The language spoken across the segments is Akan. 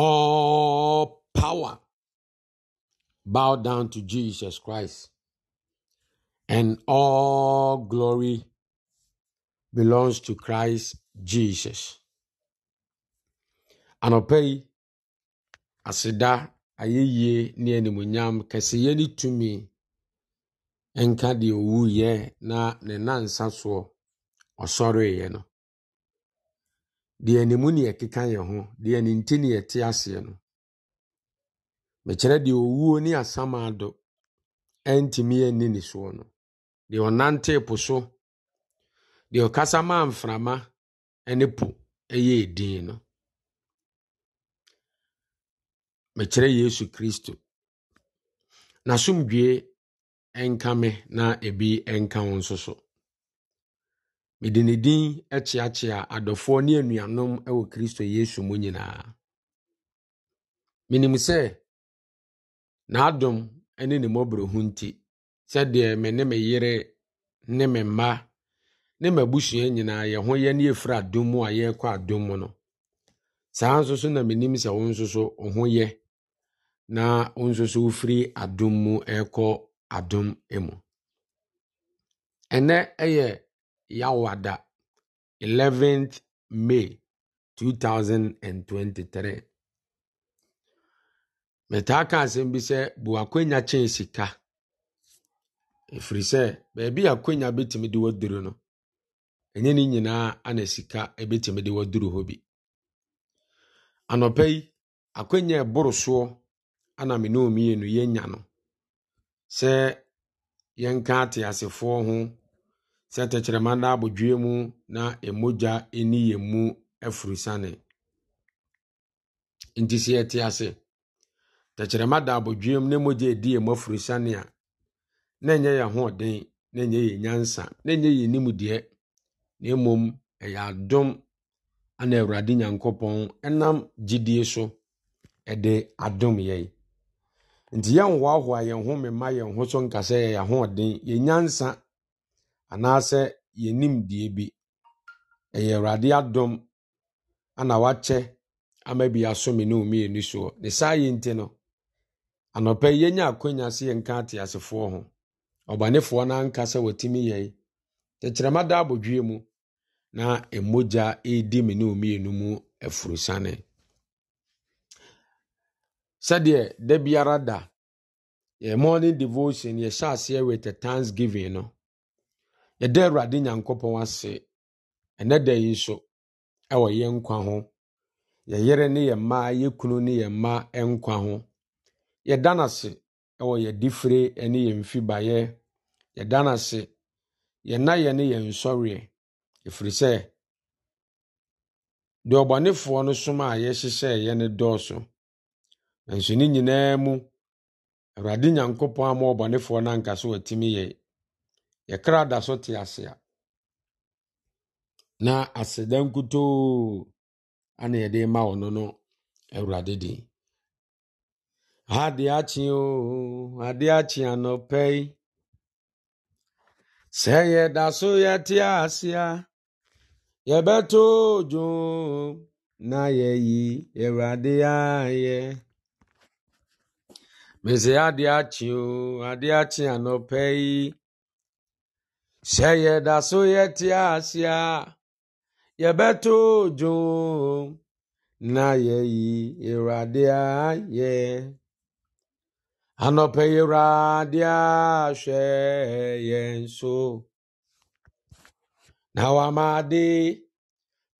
All power bow down to Jesus Christ, and all glory belongs to Christ Jesus. Anɔpa yi, aseda ayɛyie ne animonyam kɛseyɛ ne tumi nka deɛ owuiɛ na ne nansa soɔ ɔsɔreeɛ no. deɛ ne mu ne yɛkeka yɛ ho deɛ ne nti ne te aseɛ no mekyerɛ deɛ owuo ne asama ado ɛntumi ɛnni ne soɔ no deɛ ɔnante po so deɛ ɔkasa maa mframa ɛne po ɛyɛ edin no mekyerɛ yesu kristo n'asomdwee ɛnka me na ebi ɛnka wo nso so. mede ne din kyeakyea adɔfoɔ ne anuanom wɔ kristo yesu mu nyinaa menim sɛ n'adom ne ne mmɔborɔhu nti sɛdeɛ me ne me yere ne me mma ne m'abusua nyinaa yɛ ho yɛ ne yɛfiri adom mu a yɛrekɔ adom mu no saa nso so na menim sɛ wo nso so wo ho yɛ na wo nso so wofiri adom mu ɛrekɔ adom mu ɛnɛ ɛyɛ Yawada, 11th May 2023. Metaa ka asɛm bi sɛ bu akwanya kyɛn sika. Ɛfiri sɛ, baabi a akwanya bɛtumi de waduru no, ɛnyɛ ne nyinaa ana sika bɛtumi de waduru hɔ bi. Anɔpa yi, akwanya a ɛboro soɔ ana me ne wo mmienu no, sɛ yɛnka ateasefoɔ ho sɛ tɛkyerɛma nna abodwoe mu na ɛmogya ɛni yɛn mu afurusane nti sɛ yɛte ase tɛkyerɛma da abodwoe mu na mogya edi yɛn mu afurusane a na ɛnyɛ yɛn ahoɔden na ɛnyɛ yɛn nyansa na ɛnyɛ yɛn nimdeɛ na mmom ɛyɛ adom ana awurade nyankopɔn ɛnam gyidie so ɛde adom yɛn nti yɛnhoahoa yɛn ho mema yɛn ho so nka sɛ yɛyɛ ahoɔden yɛn nyansa anaasɛ yɛn nimdeɛ bi. Ɛyɛ Awurade adom ana wakyɛ ama bi asome ne soɔ. Ne saa nti no, yi yɛnya akɔnya sɛ yɛnka ateasefoɔ ho. Ɔbanefoɔ no anka sɛ watumi Tɛkyerɛma da abɔdwie mu na mmogya redi me ne mmienu mu aforosiane. Sɛdeɛ da biara da, morning devotion yɛhyɛ aseɛ with a yɛda awurade nyankopɔn ase ɛnɛ da yi so ɛwɔ yɛ nkwa ho yɛyere ne yɛ mma yɛ kunu ne yɛ mma nkwa ho yɛda n'ase ase ɛwɔ yɛdifire ne yɛn mfibaeɛ yɛda no ase yɛna yɛ ne yɛn nsɔreɛ efiri sɛ deɛ ɔbɔnefoɔ no som a yɛhyehyɛeɛ ne dɔɔso nanso ne nyinaa mu awurade nyankopɔn ama ɔbɔnefoɔ no ankasa watumi yɛe yɛkra da so te ase a na aseda nkutoo ana yɛde ma ɔno no awurade din ade akye o ade akye anɔpɛ yi sɛ yɛda so yɛte ase a yɛbɛto dwom na yɛyi awurade ayɛ mesɛ ade akye o ade akye anɔpɛ yi sɛ yɛda so yɛte ahyia yɛbɛto dwom na yɛyi awurade ayɛ anɔpɛ awurade ahwɛ yɛn so na wamade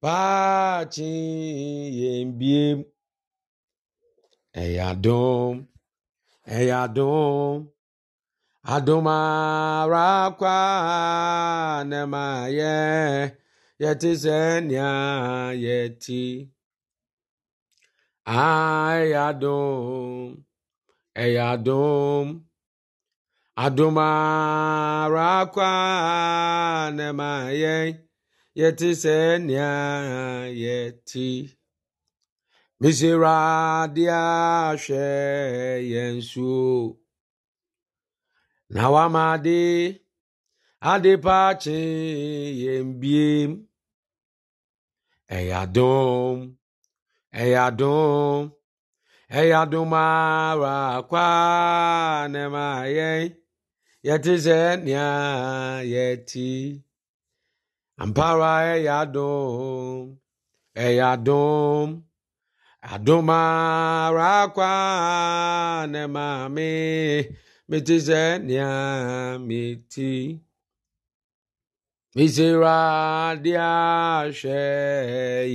paakye yɛn biem ɛyɛ adom ɛyɛ adom adomarakwa nemayɛ yɛte sɛ nea yɛti ɛyɛ adom ɛyɛ adom adomarakwa nemayɛ yɛte sɛ nea yɛti mesɛ radeɛ hwɛ yɛn yensu. nawamadi adịpachi yembiem eyadum eyadum eyadumara kwanemaye yetizenia yeti ampara eyadum eyadum adumara kwanemami mitise nia miti misira dia hwɛ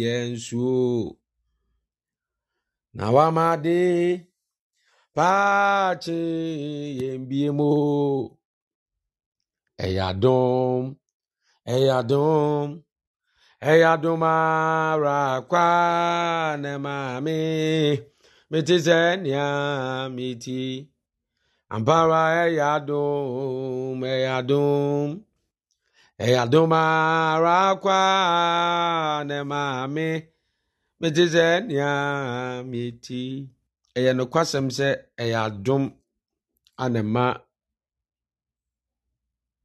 yɛn suo na wamade paakye yɛn bie mu ɛyɛ adom ɛyɛ adom ɛyɛ adom ara kwa ne maame mete sɛ nea Ampara Eyadum, Eyadum, Eyadum Arakwa Nemame, Metize Nyamiti. Ɛyɛ nokwasɛm sɛ ɛyɛ adom anema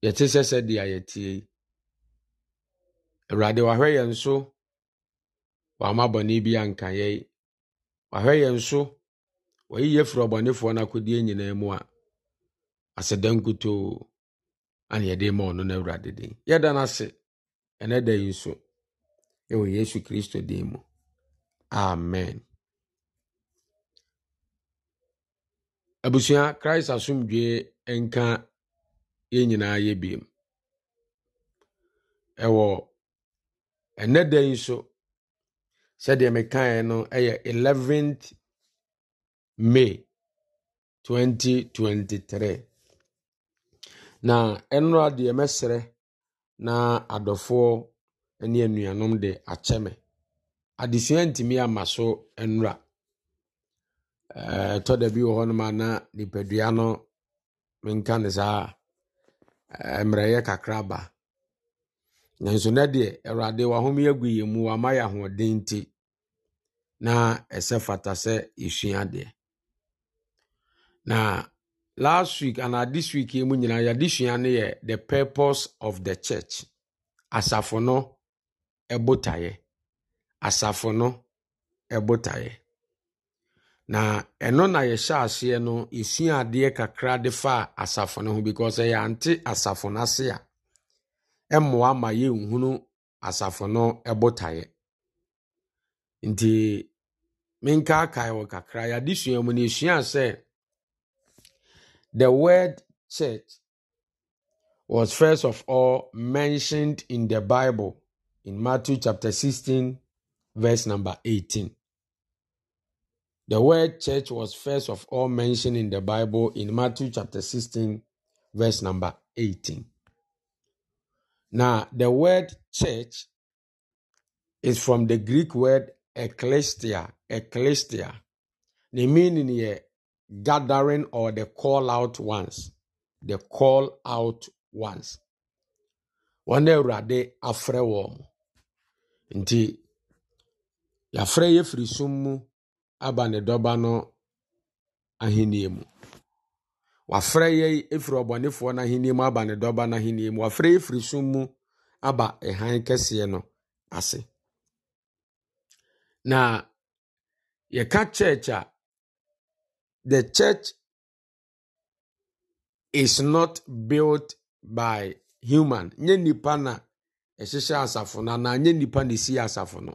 yɛte sɛ sɛdeɛ yɛtie yi. Awurade wahwɛ yɛn so wama bɔne bi anka yɛn. Wahwɛ yɛn so wayi yɛfiri ɔbɔnefoɔ no akodie nyinaa mu a ase aseda nkutoo ana yɛde ma ɔno no awurade din yɛda no ase ɛnɛ da yi nso ɛwɔ yesu kristo din mu amen abusua christ asomdwee nka yɛn nyinaa yɛ biom ɛwɔ ɛnɛ da yi nso sɛdeɛ mekaeɛ no ɛyɛ 11th may 2023 na nnora deɛ mɛsrɛ na adɔfoɔ ne anuanom de akyɛ me adesua ntumi ama so nnora ɛtɔ da bi wɔ hɔnom a na nipadua no menka ne saa yɛ kakra ba nanso nɛ deɛ awurade wahome agu yɛ mu wama yɛ ahoɔden nti na ɛsɛ fata sɛ yɛsua adeɛ na last week and na this week yi mu nyinaa yɛadesua no yɛ the purpose of the church asafo no ɛbotaeɛ asafo no ɛbotaeɛ na ɛno na yɛhyɛ aseɛ no esua adeɛ kakra de fa asafo no ho because ɛyɛ ante asafo no ase a ɛmmoa ma yɛnhunu asafo no ɛbotaeɛ nti menkaakae wɔ kakra yɛadesua mu no yɛsua sɛ The word church was first of all mentioned in the Bible in Matthew chapter 16, verse number 18. The word church was first of all mentioned in the Bible in Matthew chapter 16, verse number 18. Now, the word church is from the Greek word ekklesia, ekklesia. The meaning here gathering or the call out ones the call out ones wɔn na awurade afrɛ wɔn nti yɛafrɛ yɛ firi sum mu aba ne dɔba no ahenni mu wafrɛ yɛ efiri ɔbɔnefoɔ no ahenni mu aba ne dɔba no ahenni mu wafrɛ yɛ firi sum mu aba ɛhan kɛseɛ no ase na yɛka church a The church is not built by human. Nye nipa na ɛhyehyɛ asafo no anaa nye nipa na esi asafo no.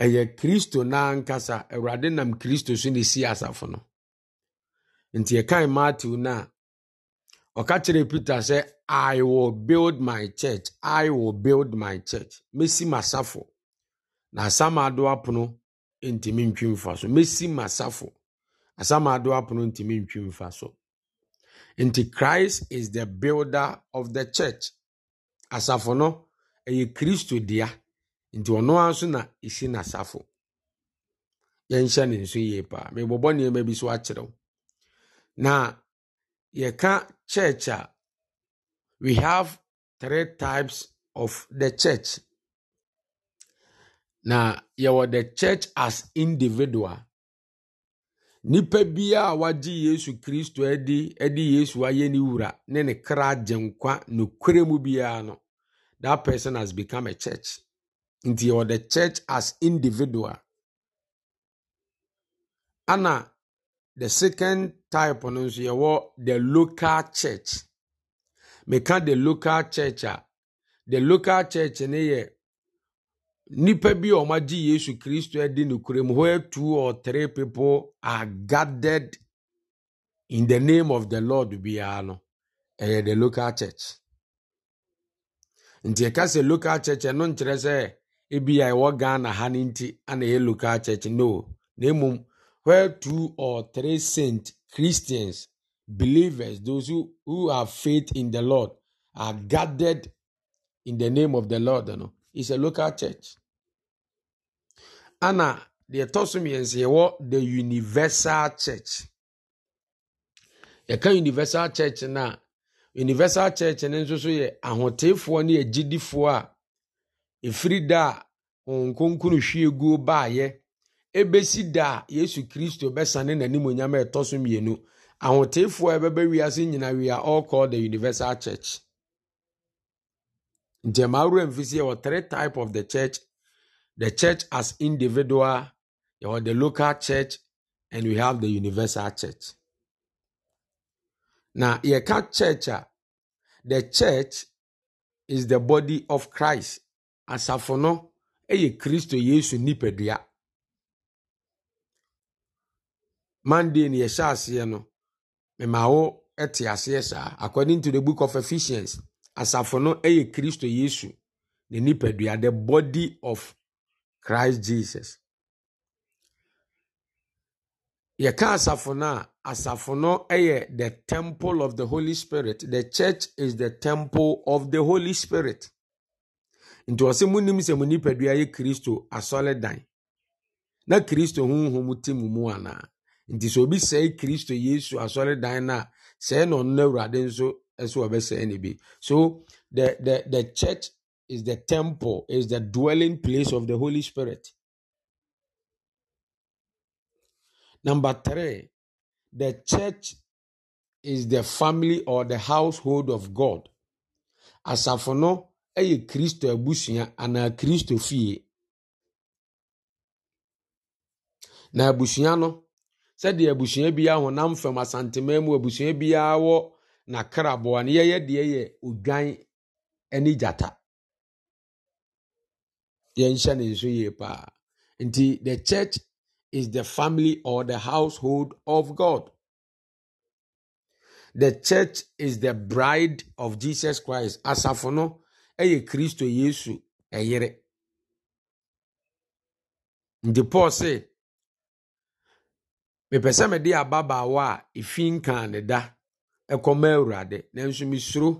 Ɛyɛ Kristo n'ankasa. Awurade nam Kristo so na esi asafo no. Nti ɛkan Matthew na ɔka kyerɛ Peter sɛ I will build my church. I will build my church. Mesi m'asafo. Na asam adoa pono ntumi ntwi mfa so. Mesi m'asafo. Asama apono ntumi ntwi mfa so nti christ is the builder of the church asafo no ɛyɛ kristo dea nti ɔno ara nso na ɛsi n'asafo yɛnhyɛ ne nso yie paa mebɔbɔ nneɛma bi so akyerɛw na yɛka church a we have three types of the church na yɛwɔ the church as individual nnipa bi a wɔagye yesu kristo adi de yesu ayɛ ne wura ne ne kra gye nkwa nokorɛ mu biara no that person has become a church nti yɛwɔ the church as individual ana the second type no nso yɛwɔ the local church meka the local church a the local church ne yɛ Nipa bi a wɔagye Yesu Kristo adi no kurom where two or three people are gathered in the name of the Lord biara no, ɛyɛ the local church. Nti ɛka sɛ local church ɛno nkyerɛ sɛ ebi a ɛwɔ Ghana ha no nti ana ɛyɛ local church no. Na mmom where two or three saint Christians, believers, those who, who have faith in the Lord are gathered in the name of the Lord. No? It's a local church. ana deɛ ɛtɔ so mmiɛnsa yɛwɔ the universal church yɛka universal church na universal church no nso so yɛ ahoteefoɔ ne agyidifoɔ a efiri da a wɔn nkonkunu hwie guo baayɛ ɛbɛsi da a yesu kristo bɛsane n'anim a ɛtɔ so mmienu ahoteefoɔ a ɛbɛbɛ wiase nyina we are all called the universal church nti ɛmaa mfisi yɛ wɔ three type of the church the church as individual, or the local church, and we have the universal church. Now, here church, the church is the body of Christ. Asafo no, eye Kristo Yesu nipadua. Monday ni yeshasiano, aseɛ no, mmawo te According to the book of Ephesians, asafo no eye Kristo Yesu ne nipadua, the body of christ jesus yɛka asafo no a asafo no yɛ the temple of the holy spirit the church is the temple of the holy spirit nti ɔsɛ munim sɛ mo nipadua yɛ kristo asɔredan na kristo honhom te mo mu anaa nti sɛ obi sɛe kristo yesu no a sɛe na ɔno no awurade nso sɛ wɔbɛsɛe no bi so the, the, the church is the temple, is the dwelling place of the Holy Spirit. Number three, the church is the family or the household of God. Asafono, no ɛyɛ Kristo abusua anaa Kristo fie. Na abusua Sedi sɛdeɛ biya biara honam fam asantemaa mu abusua biara wɔ n'akraboa no yɛyɛ deɛ yɛnhyɛ ne nso yie paa nti the church is the family or the household of god the church is the bride of jesus christ asafo no ɛyɛ kristo yesu ɛyere nti paul se mepɛ sɛ mede ababaawa a ɛfi nkaa ne da ɛkɔma awurade nanso mesuro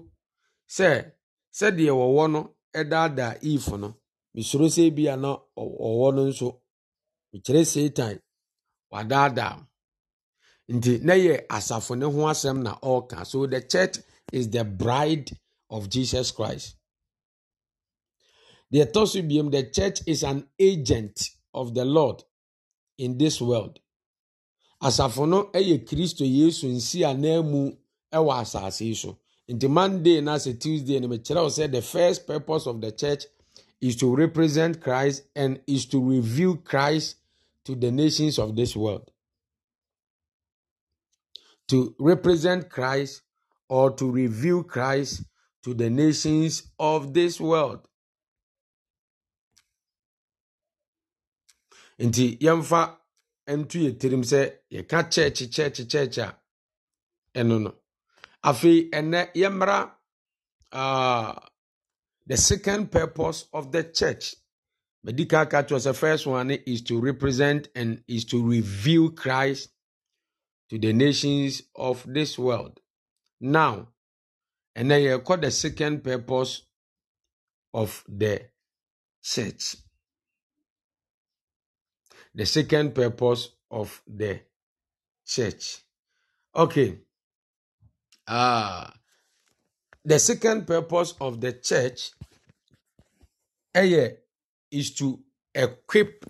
sɛ sɛdeɛ wɔwɔ no ɛdaadaa if no mesoro sɛ bi a na ɔwɔ no nso mekyerɛ satan wadaadaa nti na yɛ asafo ne ho asɛm na ɔreka so the church is the bride of jesus christ deɛ ɛtɔ so biom the church is an agent of the lord in this world asafo no yɛ kristo yesu nsi a na mu wɔ asase so nti monday na sɛ tuesday no mekyerɛ wo sɛ the first purpose of the church is to represent Christ and is to reveal Christ to the nations of this world. To represent Christ or to reveal Christ to the nations of this world. Nti yamfa ntu yɛ tirim sɛ yɛka church church church a ɛno no. Afei the second purpose of the church, medical Dikaka was the first one, is to represent and is to reveal Christ to the nations of this world. Now, and then you call the second purpose of the church. The second purpose of the church. Okay. Ah. the second purpose of the church ɛyɛ eh, is to equip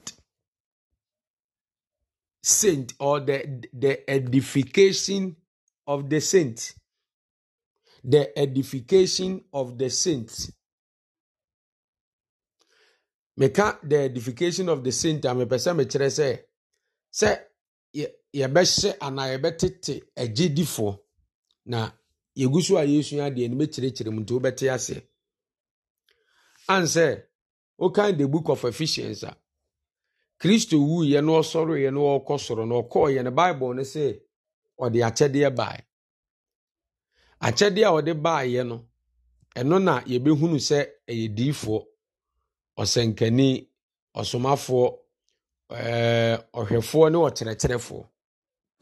saint or the the edification of the saint the edification of the saint meka the edification of the saint a ah, mepɛ sɛ mekyerɛ sɛ sɛ yɛbɛhyɛ anaa yɛbɛtete agyedifoɔ na yɛgu so a yɛsua adeɛ no mɛkyerɛkyerɛ mu nti wobɛte aseɛ an sɛ wokan the book of efficience a kristo wuiɛ na ɔsɔreeɛ na ɔrekɔ soro na ɔkɔɔyɛ no bible no sɛ ɔde akyɛdeɛ bae akyɛdeɛ a ɔde baeɛ no ɛno na yɛbɛhunu sɛ ɛyɛ diifoɔ ɔsɛnkani ɔsomafoɔ ɔhwɛfoɔ ne ɔkyerɛkyerɛfoɔ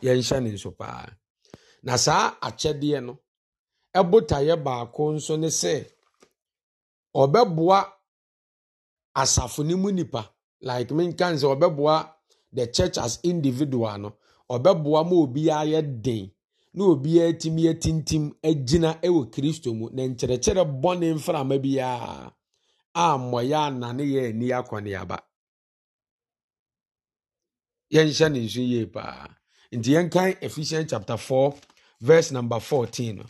yɛnhyɛ ne nso paa na saa akyɛdeɛ no botaeɛ baako nso ne sɛ ɔbɛboa asafo no mu nipa like menka sɛ ɔbɛboa the church as individual no ɔbɛboa ma obiara yɛ den na obiara tumi atintim agyina wɔ kristo mu na nkyerɛkyerɛ bɔne mframa biara a mmɔyɛ anane yɛ ani akɔneaba yɛnhyɛ ne nso yie paa nti yɛnkan ephesians chapter 4 verse number 14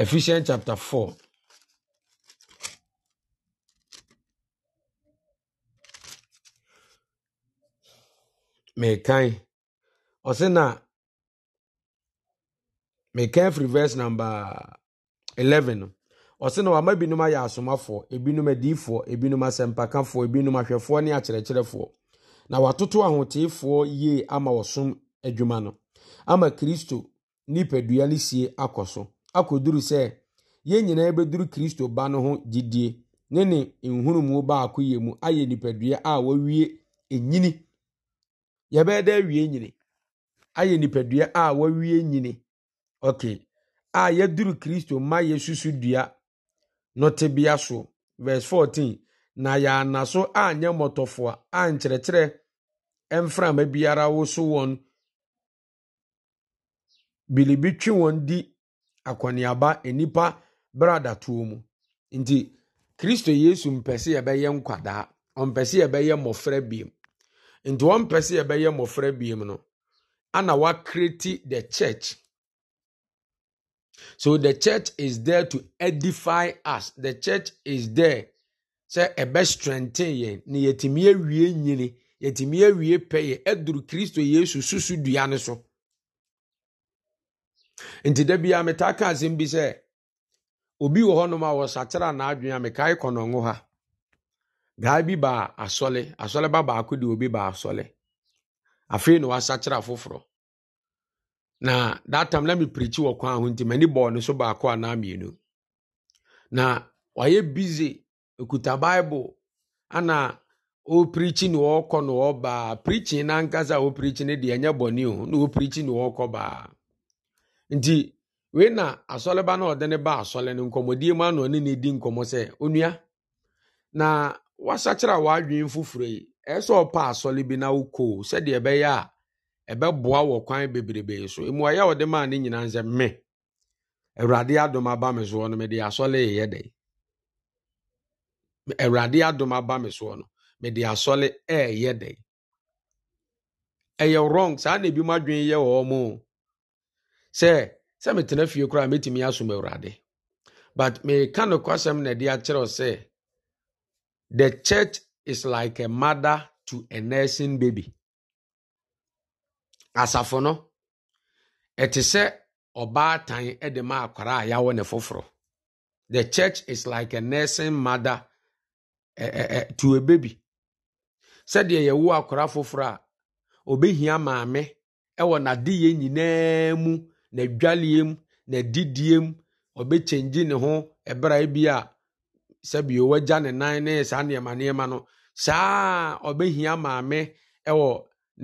Ephesians chapter 4. mekan ɔse na mekan firi verse number eleven. no ɔse na wama binom ayɛ asomafoɔ ebinom adiyifoɔ ebinom asɛmpakafoɔ ebinom ahwɛfoɔ ne akyerɛkyerɛfoɔ na watoto ahoteefoɔ yie ama wɔsom adwuma no ama kristo nipadua no sie akɔ so akɔduru ya yɛn nyinaa bɛduru kristo ba no ho gyidie ne ne nhunumu baako yɛ mu ayɛ nipadua a wɔawie enyini yɛbɛyɛ dɛ awie nyini ayɛ nipadua a wɔawie nyini ok a yaduru kristo ma yɛsusu dua nọtebea so verse 14 na yɛana so anyɛ mmɔtɔfoa a nkyerɛkyerɛ mframa biara woso wọn bilibi twe wọn di akɔneaba nnipa bradatoɔ mu nti kristo yesu mpɛ sɛ yɛbɛyɛ nkwadaa ɔmpɛ sɛ yɛbɛyɛ mmɔfra biem nti ɔmpɛ sɛ yɛbɛyɛ mmɔfra biem no ana wakreti the church so the church is there to edify us the church is there sɛ ɛbɛ strengthen yɛn na yɛtumi awie nyini yɛtumi awie pɛyɛ ɛduru kristo yesu susu dua no so nti da biara metaa ka asɛm bi sɛ obi wɔ hɔnom a wɔsakyera n'adwene a mekae kɔnɔngo ha gaa bi baa asɔle asɔle ba baako de obi baa asɔle afei na wasakyera foforɔ na that time na mepirikyi wɔ kwan ho nti m'ani bɔɔ ne so baako anaa mmienu na wayɛ bize okuta bible ana ɔpirikyi na ɔrekɔ na ɔreba pirikyi n'ankasa a ɔpirikyi no deɛ ɛnyɛ bɔne o na ɔpirikyi na ɔrekɔ baa nti wei na asɔre ba na ɔde ne ba asɔre no nkɔmmɔdie na ano nkọmọ sị di nkɔmmɔ sɛ onua na wasakyerɛ a wadwin foforɔ yi ɛyɛ sɛ ɔpa asɔre bi na wokɔ sɛdeɛ ɛbɛyɛ a ɛbɛboa wɔ kwan bebrebe so emu ayɛ ɔde maa ne nyinaa nsɛ mme awurade adom aba me soɔ no mede asɔre yɛ dɛ awurade adom aba me soɔ no mede asɔre ɛɛyɛ dɛ ɛyɛ wrong saa na ebi mu adwin yɛ wɔ ɔmo o. sɛ sɛ metena fie koraa mɛtumi asom awurade but meka nokwasɛm na de akyerɛw sɛ the church is like a mother to a nursing baby asafo no ɛte sɛ ɔbaatan de ma akwara a yɛawɔ ne foforɔ the church is like a nursing mother eh, eh, to a baby sɛdeɛ yɛwo akwara foforɔ a ɔbɛhia maame ɛwɔ n'adeyɛ nyinaa mu na n'adwareɛ mu n'adidiɛ mu ɔbɛkyɛngye ne ho ɛbra bi a sɛbi wagya ne nan ne saa nneɛma nneɛma no saa ɔbɛhia maame ɛwɔ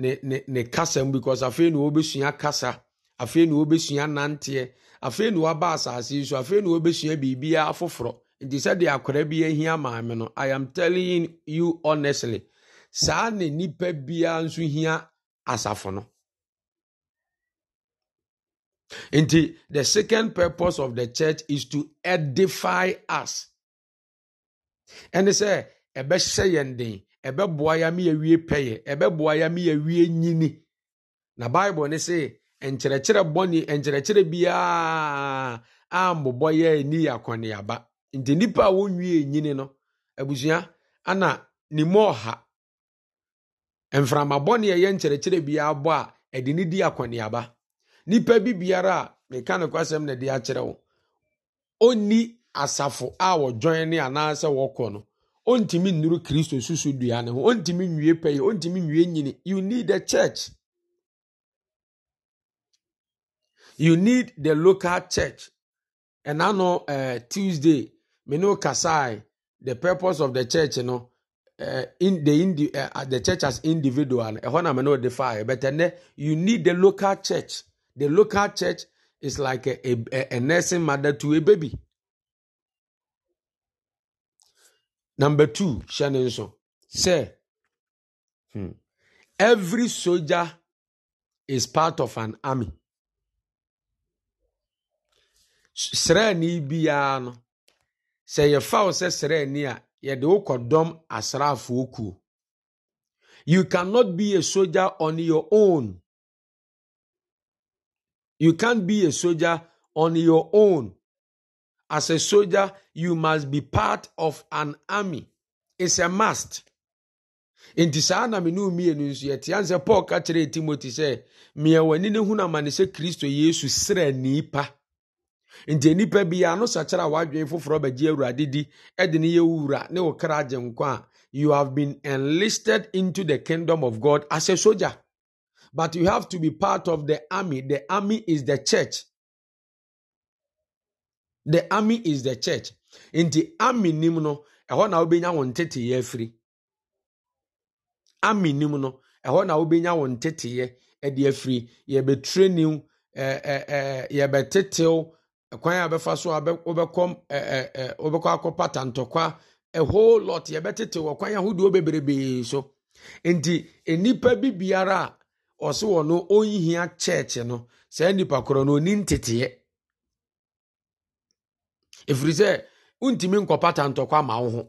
ne ne ne kasa mu because afei na wɔbɛsua kasa afei na wɔbɛsua nanteɛ afei na wɔaba asase yi so afei na wɔbɛsua biribiara foforɔ nti sɛdeɛ akwara bi ahia maame no i am telling you honestly saa na nipa biara nso hia asafo no. Nti, the second purpose of the church is to edify us. And they say, "Ebe den, ebe yɛ ama yɛwie pɛyɛ, ɛbɛboa yɛ ama yɛwie nyini. Na Bible ne se nkyerɛkyerɛ bɔne, nkyerɛkyerɛ biara ammobɔ yɛ ani yɛ akɔneaba. Nti nnipa a wɔnwie no, abusua ana ne mu ɔha. Mframa bɔne a ɛyɛ nkyerɛkyerɛ biara bɔ a, ɛde ne di akɔneaba nipa bi biara a meka ne kwasɛm na de akyerɛ wo ɔnni asafo a wɔdwɔn ne anaasɛ wɔkɔ no ɔntumi nnuru kristo susu dua ne ho ɔntumi nwie pɛyɛ ɔntumi nwie nyini you need the church you need the local church ɛna no uh, eh, tuesday me ne kasae the purpose of the church no uh, eh, in the, indi, uh, the church as individual ɛhɔ na me ne ɔde faeɛ but ɛnɛ you need the local church The local church is like a, a, a nursing mother to a baby. Number two, Shannon, say, hmm, every soldier is part of an army. Srani wo You cannot be a soldier on your own. You can't be a soldier on your own. As a soldier, you must be part of an army. It's a must. In saa na mene mmienu nso yɛte ane sɛ paul ka kyerɛɛ timothy sɛ meɛ w'ani ne hunu amane sɛ kristo yesu serɛ nipa nti nipa biara no sakyera a wadwene foforɔ bɛgye awurade di de ne yɛ wura ne wo kra agye nkwa you have been enlisted into the kingdom of god as a soldier but you have to be part of the army. The army is the church. The army is the church. In the army nim no, ɛhɔ na wobɛnya wɔn teteyɛ afiri. Army nim no, ɛhɔ na wobɛnya wɔn teteyɛ ɛde afiri. Yɛbɛtre new, ɛɛ ɛɛ yɛbɛtetew kwan a bɛfa so a wobɛkɔ ɛɛ ɛɛ wobɛkɔ akɔpa tantɔkwa. A whole lot ye yɛbɛtetew wɔ kwan ahodoɔ bebrebee so. in the nnipa bi biara ɔse wɔ no ɔnhia kyɛɛkye no saa nnipa korɔ no ɔni nteteɛ ɛfiri sɛ wontumi nkɔpata ntɔkɔ ama wo ho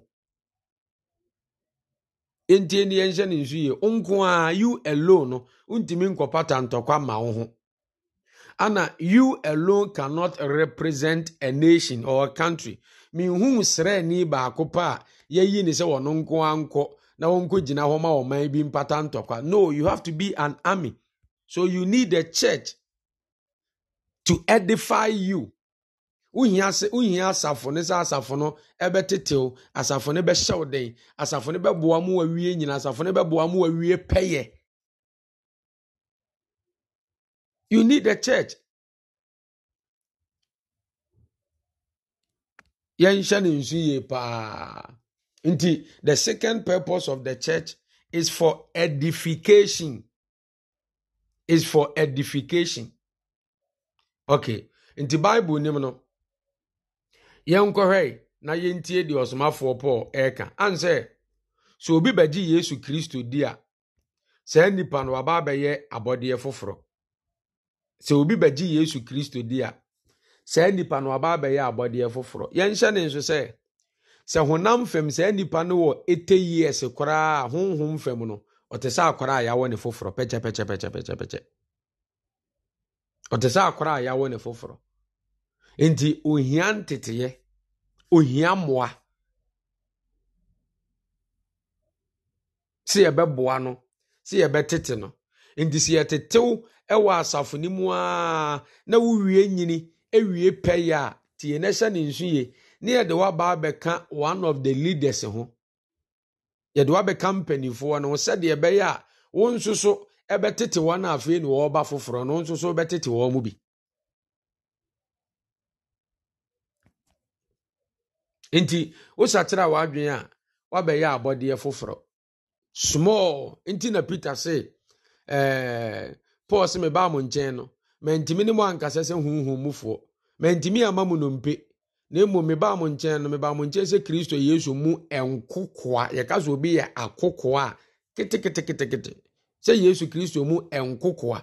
ɛntie ni yɛnhyɛ ne nso yie nko a you alone no wontumi nkɔpata ntɔkɔ ama ana you alone cannot represent a nation or a country mehu srɛni baako pa a yɛayi na sɛ wɔno nko a nkɔ na wɔnkɔ gyina hɔ ma ɔman bi mpata ntɔkwa no you have to be an army so you need a church to edify you wohia asafo no sɛ asafo no ɛbɛtetew asafo no bɛhyɛw den asafo no bɛboa mu wawie nyina asafo no bɛboa mu wawie pɛyɛ you need a church yɛnhyɛ no nsu yie paa nti the second purpose of the church is for edification is for edification okay nti bible nim no yɛnkɔhwɛ na yɛntie deɛ ɔsomafoɔ paul ɛreka ansɛ sɛ obi bɛgye yesu kristo di a saa nnipa no waba abɛyɛ abɔdeɛ foforɔ sɛ obi bɛgye yesu kristo di a saa nnipa no waba abɛyɛ abɔdeɛ foforɔ yɛnhyɛ ne nso sɛ sɛ honam fam saa nipa no wɔ ɛte years koraa honhom fam no ɔte sɛ akwara a yɛawɔ ne foforɔ pɛkyɛpɛkyɛpɛkyɛpɛkyɛ ɔte sɛ akwara a yɛawɔ ne foforɔ nti ohia nteteyɛ ohia mmoa sɛ yɛbɛboa no sɛ tete no nti sɛ yɛtetew ɛwɔ asafo no mu a na wowie nyini ɛwie pɛyɛ a tie na hyɛ ne nsu yie ne yɛde waba abɛka one of the leaders ho yɛde ka mpanimfoɔ no sɛdeɛ ɛbɛyɛ a wo nso so ɛbɛtete wɔn a afei na wɔreba foforɔ no wo nso so wobɛtete wɔn mu bi nti wosakyerɛ a w'adwene a wabɛyɛ abɔdeɛ foforɔ small nti na peter se eh, paul se mebaa mo nkyɛn no mantimi ne mo ankasa sɛ huhumufoɔ mantimi ama mu mpe. na mmom mebaa mo nkyɛn no mebaa mo nkyɛn sɛ kristo yesu mu nkokoa yɛka sɛ obi yɛ akokoa a keteketekete sɛ yesu kristo mu nkokoa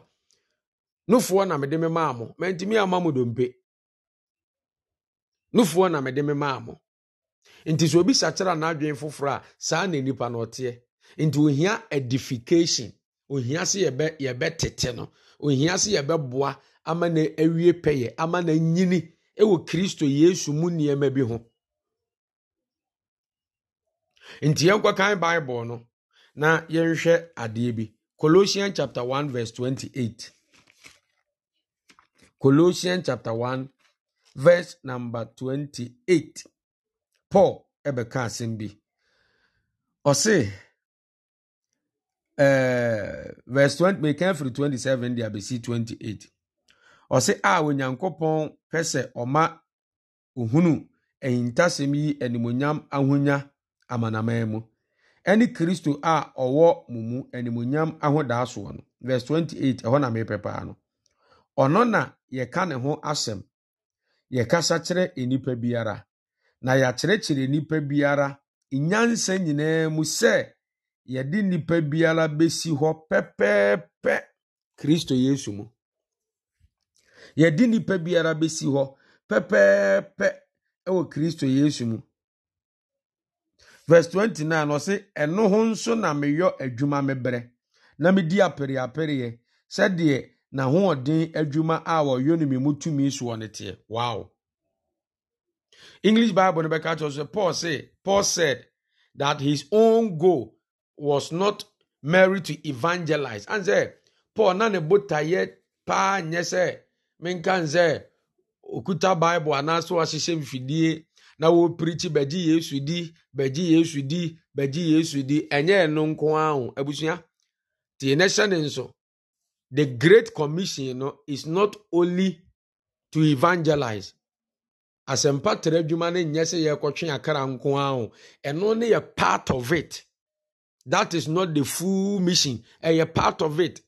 nofoɔ na mede me maa mo mantumi ama mo dompe nofoɔ na mede me maa mo nti sɛ obi sakyera n'adwene foforɔ a saa na nipa na ɔteɛ nti ohia edification ohia sɛ yɛbɛ tete no ohia sɛ yɛbɛboa ama na awie pɛyɛ ama na nyini wɔ kristo yesu mu nneɛma bi ho nti yɛnkɔkan bible no na yɛnhwɛ adeɛ bi colossian chapter 1 verse 28 colossian chapter 1 verse number 28 paul ɛbɛka asɛm bi ɔse uh, verse 20 27 28 ɔse a onyankopɔn pɛ sɛ ɔma ohunu ahintasɛm yi animonyam ahonya amanaman mu ɛne kristo a ɔwɔ mo mu animonyam ahodaa soɔ no verse 28 ɛhɔ na mepɛ paa no ɔno na yɛka ne ho asɛm yɛkasa kyerɛ nnipa biara na yɛakyerɛkyerɛ nnipa biara nyansa nyinaa mu sɛ yɛde nnipa biara bɛsi hɔ pɛpɛɛpɛ kristo yesu mu yɛde nnipa biara bɛsi hɔ pɛpɛɛpɛ wɔ kristo yesu mu verse 29 ɔse ɛno ho nso na meyɔ adwuma mebrɛ na medi apereapereɛ sɛdeɛ n'ahoɔden adwuma a wɔyɔ no mu tumi soɔ no teɛ wow english bible no bɛka kyerɛ sɛ paul say paul said that his own goal was not married to evangelize and sɛ paul na ne botaeɛ paa nyɛ sɛ menka okuta bible anaasɛ wahyehyɛ mfidie na wɔpirikyi bɛgye yesu di bɛgye yesu di bɛgye yesu di ɛnyɛ ɛno nko ara abusua tie ne hyɛ ne nso the great commission no is not only to evangelize asɛmpa tara adwuma no nyɛ sɛ yɛrekɔtwe akara nko ara ɛno ne yɛ part of it that is not the full mission ɛyɛ part of it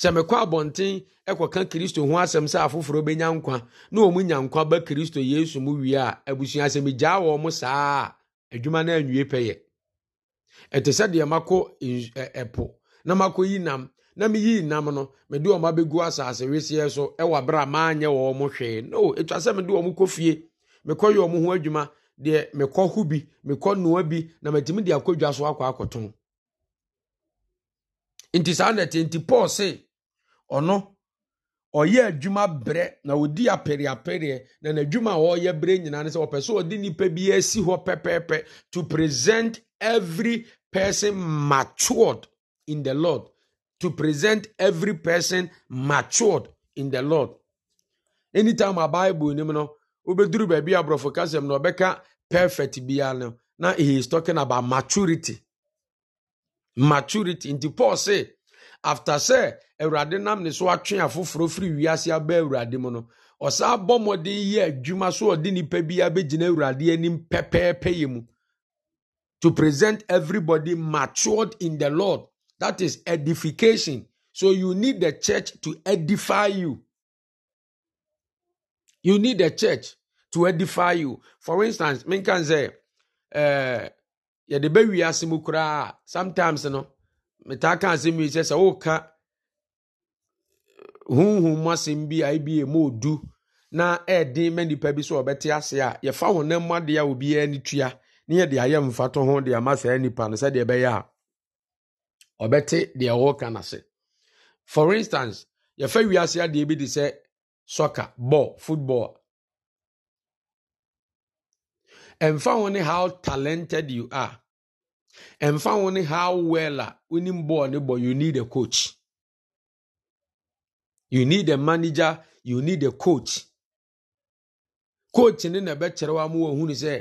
sɛ mekɔ abɔnten kɔka kristo ho asɛm sɛ afoforɔ bɛnya nkwa na ɔmu nya nkwa ba kristo yesu mu wie a abusua sɛ megyaa wɔ mo saa adwuma no anwie pɛyɛ ɛte sɛ deɛ makɔ ɛpo na makɔ yi nam na meyii nam no mede ɔma bɛgu asase weseɛ so ɛwɔ berɛ a maanyɛ wɔ mo hwee no ɛtwa sɛ mede ɔ mo kɔ fie mekɔyɛ ɔ mo ho adwuma deɛ mekɔ ho bi mekɔ nnoa bi na matumi de akɔdwa so akɔ akɔtɔn nti saa nɛte nti paul se ɔno ɔyɛ adwuma brɛ na ɔdi apɛreapɛreɛ na n'adwuma a ɔreyɛ brɛ nyinaa no sɛ ɔpɛ so ɔde nnipa bi asi hɔ pɛpɛɛpɛ to present every person matured in the lord to present every person matured in the lord anytime a bible nim no wobɛduru baabi aborɔfo kasɛm na ɔbɛka perfect biara no na he is talking about maturity maturity nti paul say after sɛ awurade nam ne so atwe afoforɔ firi wiase aba awurade mu no ɔsan abɔ mmɔden yɛ adwuma so ɔde nipa bi abɛgyina awurade anim pɛpɛɛpɛ yɛ mu to present everybody matured in the lord that is edification so you need the church to edify you you need the church to edify you for instance menka sɛ ɛɛ eh, yɛde bɛ wiase mu koraa sometimes you no. metaa aka asɛm yi sɛ sɛ woka honhom mu asɛm bi a ebi emu odu na ɛɛden ma nipa bi sɛ ɔbɛte ase a yɛfa honam mu adeɛ a obiara ne tua ne yɛde ayɛ mfato ho de ama saa nipa no sɛdeɛ ɛbɛyɛ a ɔbɛte deɛ ɔwɔka n'ase for instance yɛfa wiase adeɛ bi de sɛ soccer ball football ɛmfa ho ne how talented you are ɛmfa wo ne how well a ah, wonim bɔɔl ne bɔ you need a coach you need a manager you need a coach coach ne na ɛbɛkyerɛ wa ma wɔhunu sɛ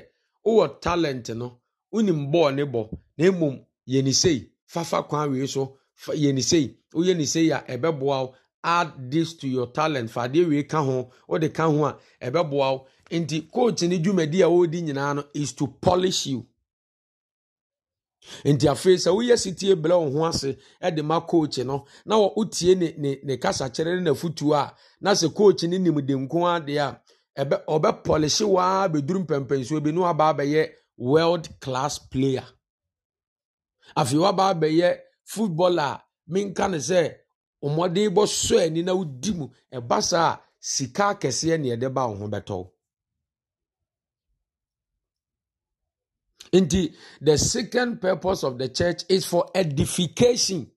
wowɔ talent no wonim bɔɔl ne bɔ na mmom yɛni sei fafa kwan wei so yɛni sei woyɛ ni a ɛbɛboa wo add this to your talent fa adeɛ wei ka ho wode ka ho a ɛbɛboa wo nti coach ne dwumadi a wɔredi nyinaa no is to polish you nti afei sɛ woyɛ sitie brɛ wo ho ase de ma coach no na wotie ne ne ne kasakyerɛ ne n'afotuo a na sɛ coach ne nimde nko adeɛ a ɛbɛ ɔbɛpɔlehye waa bɛduru mpɛmpɛnsoɔ bi ne waba abɛyɛ world class player afei waba abɛyɛ football a minka ne sɛ ɔmmɔden bɔ sɔ ani na wodi mu ɛba saa sika kɛseɛ ne ɛde ba wo ho bɛtɔw Indeed, the second purpose of the church is for edification.